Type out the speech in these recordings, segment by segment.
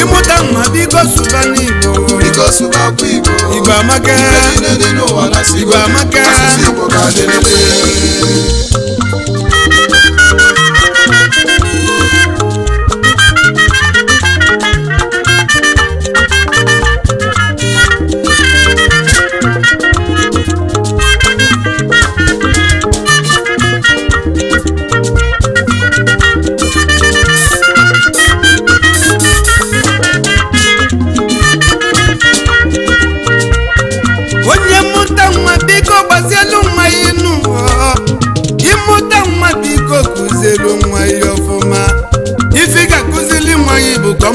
ịmụta mma biko sụba n'Igbo Igbo amaka Igbo amaka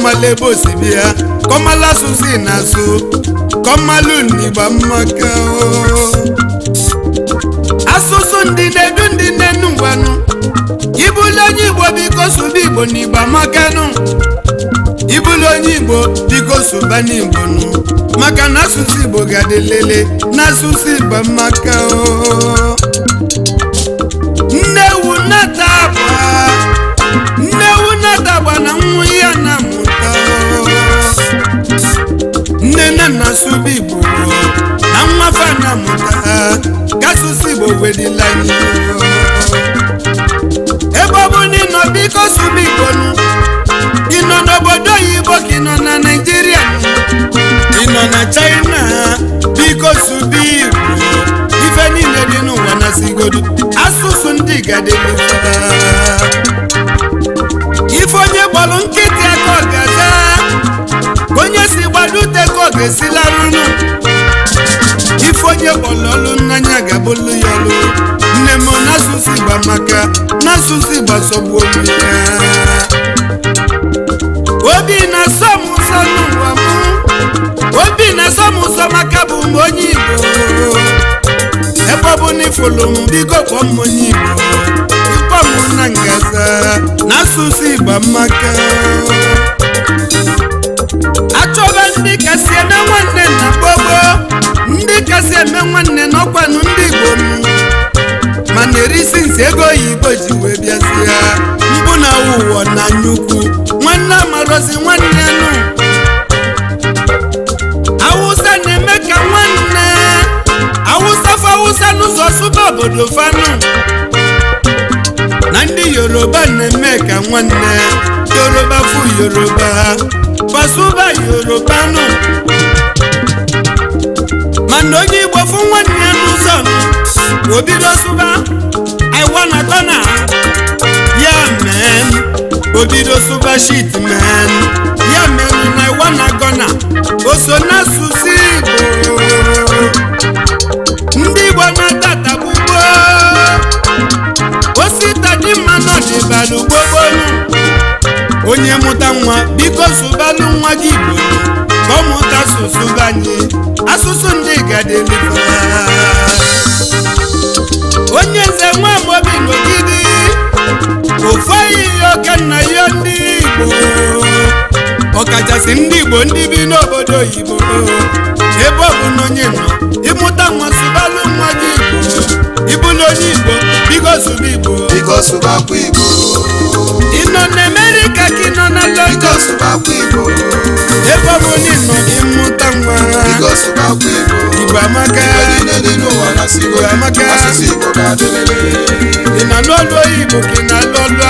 kọmala ebe osibi ya kọmala asụsụ na asụ kọmala unigba mmaka oh. asụsụ ndị na-edu ndị nenu ngwanụ ibulu onye igbo biko sụba igbo na igbo amakanụ ibulu onye igbo biko bá n'igbo nụ maka na asụsụ igbo ga-adị lele na o ndị Igbo ife niile dị n'ụwa na sigodu asụsụ ndị gadelu ife onye gbalụ nkịtị aka ọ onye si gbalụ ute ka ọ ga ife onye gbalụ ọlụ n'anya ga ya ọlụ nne m n'asụsụ igba maka n'asụsụ igba sọgbu olu ya obi na-asụ bụ onye Igbo ebe ọ bụ n'ifolu m bigo kpọọ m onye Igbo ịkpọ m na ngaza na asụsụ Igbo maka achọba ndị kasị na nwanne na gbogbo Yorùbá fún Yorùbá Pasuma Yorùbá nù. mana onye Igbo fún nwanne ya n'ụzọ nụ obido sụba iwa na ya men obido sụba shit men ya men na iwa na gọna o so n'asụsụ Igbo ndị Igbo na-ata tagbugboo osi tadimma nọ dịbalụ gbogbo onye mụta nwa biko sụbalụ nwa gị igbo ka ọ mụta asụsụ banye asụsụ ndị gadeli onye nze nwa amobi n'ogidi ofu ihe oke nna ya ndị igbo ọkachasị ndị igbo ndị bi n'obodo oyibo ebe ọ bụ n'onye nọ ịmụta nwa sụbalụ nwa gị igbo ịbụ na onye igbo biko sụba igbo biko sụbakwa igbo ị nọ na amerịka ka ị nọ na london biko sụbakwa igbo ebe ọ bụla ị nọ gị mmụta nwa biko sụbakwa igbo igbo amaka igbo amaka ị nọ n'olu oyibo ka ị na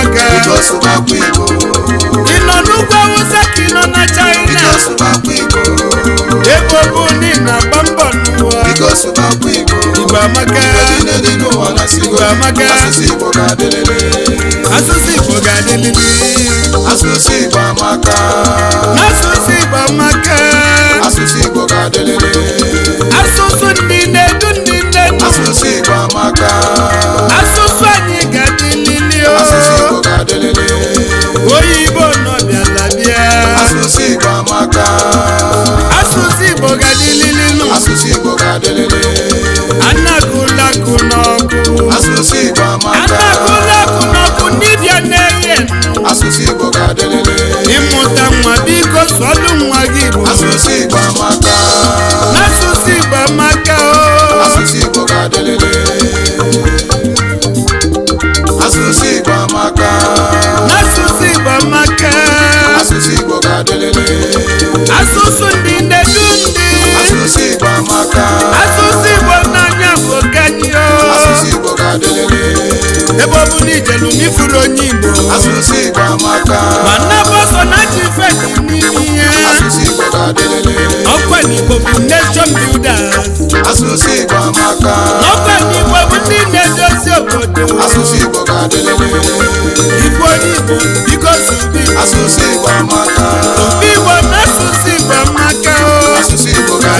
aka biko sụbakwa igbo ị nọ n'ugwu awụsa ka ị nọ na china biko sụbakwa igbo Igbo bụ ndị na-agba mbọ n'ụwa Igbo amaka Igbo amaka asụsụ ga asụsụ asụsụ ga asụsụ Igbo amaka obi Igbo na asụsụ Igbo ga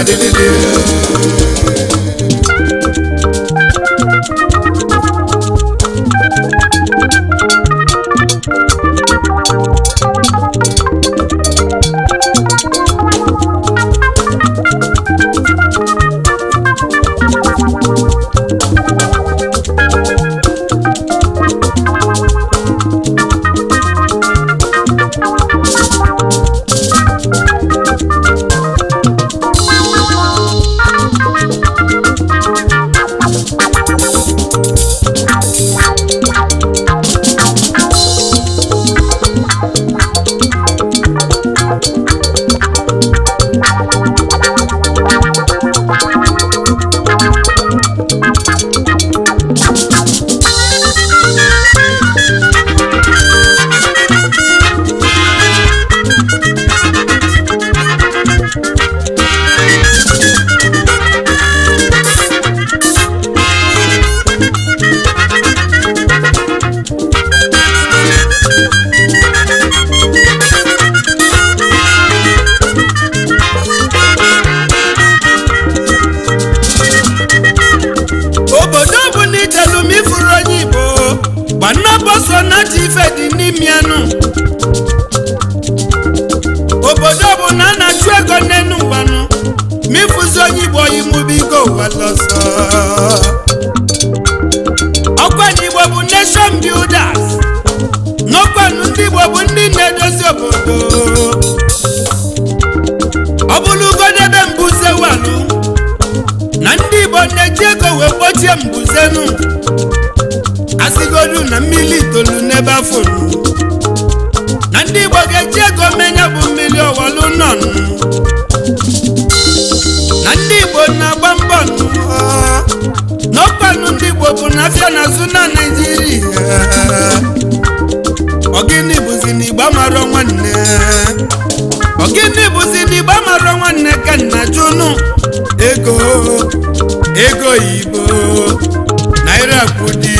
Ego yi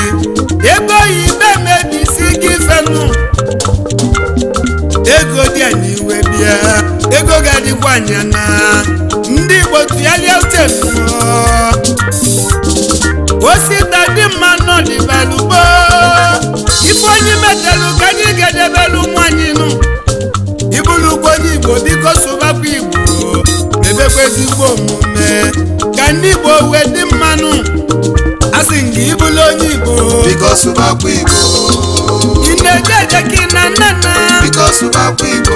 ego ibe mebisi gị fenu ego dị anyị iwe bịa ego ga-adịkwa anya na ndị Igbo tụgharịa steeti osita dị mma belugbo. ife onye metelu ka anyị ga-edebelu nwanyị nu. Ibulugbo onye Igbo bi biko sụbakwa Igbo mebekwa ezigbo omume ka ndị Igbo wee dị mma ka ịbụlụ onye Igbo biko sụbakwa Igbo ị na-eje eje ka ị na nna nna biko sụbakwa Igbo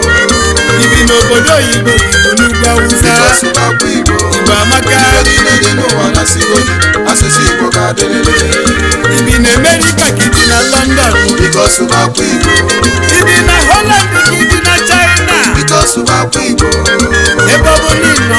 ibi n'obodo oyibo n'ugwu awụsa biko sụbakwa Igbo Igbo amaka niile dị n'ụwa na sigodi asụsụ Igbo ka adịrịrị ibi na Amerịka ka ibi na London biko sụbakwa Igbo ibi na Holland ka ibi na China biko sụbakwa Igbo ebe ọ bụ n'ịnọ